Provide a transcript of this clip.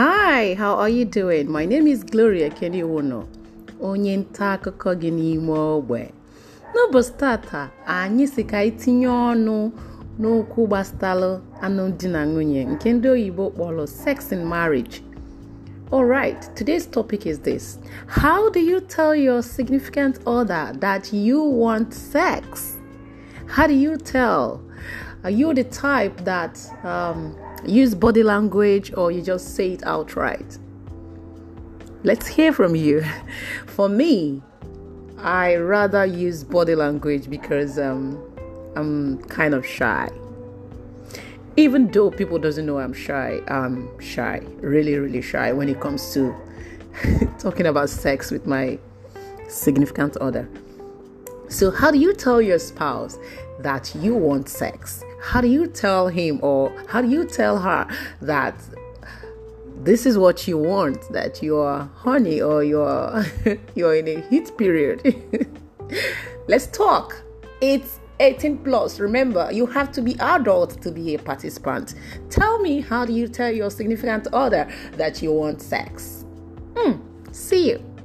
Hi, how are you doing? My name is Gloria Keniwono, onye nta akụkọ gị n'ime ogbe. N'ụbọchị tata, anyị si ka anyị tinye ọnụ n'okwu anụ alụmdi na nwunye nke ndị oyibo kpọrọ sex in marriage. Alright, today's topic is this: How do you tell your significant other that you want sex? How do you tell? Are you the type that um, use body language or you just say it outright? Let's hear from you. For me, I rather use body language because um, I'm kind of shy. Even though people doesn't know I'm shy, I'm shy, really, really shy when it comes to talking about sex with my significant other. So, how do you tell your spouse that you want sex? How do you tell him or how do you tell her that this is what you want that you're honey or you're you're in a heat period? Let's talk. It's 18 plus. Remember, you have to be adult to be a participant. Tell me, how do you tell your significant other that you want sex? Mm, see you.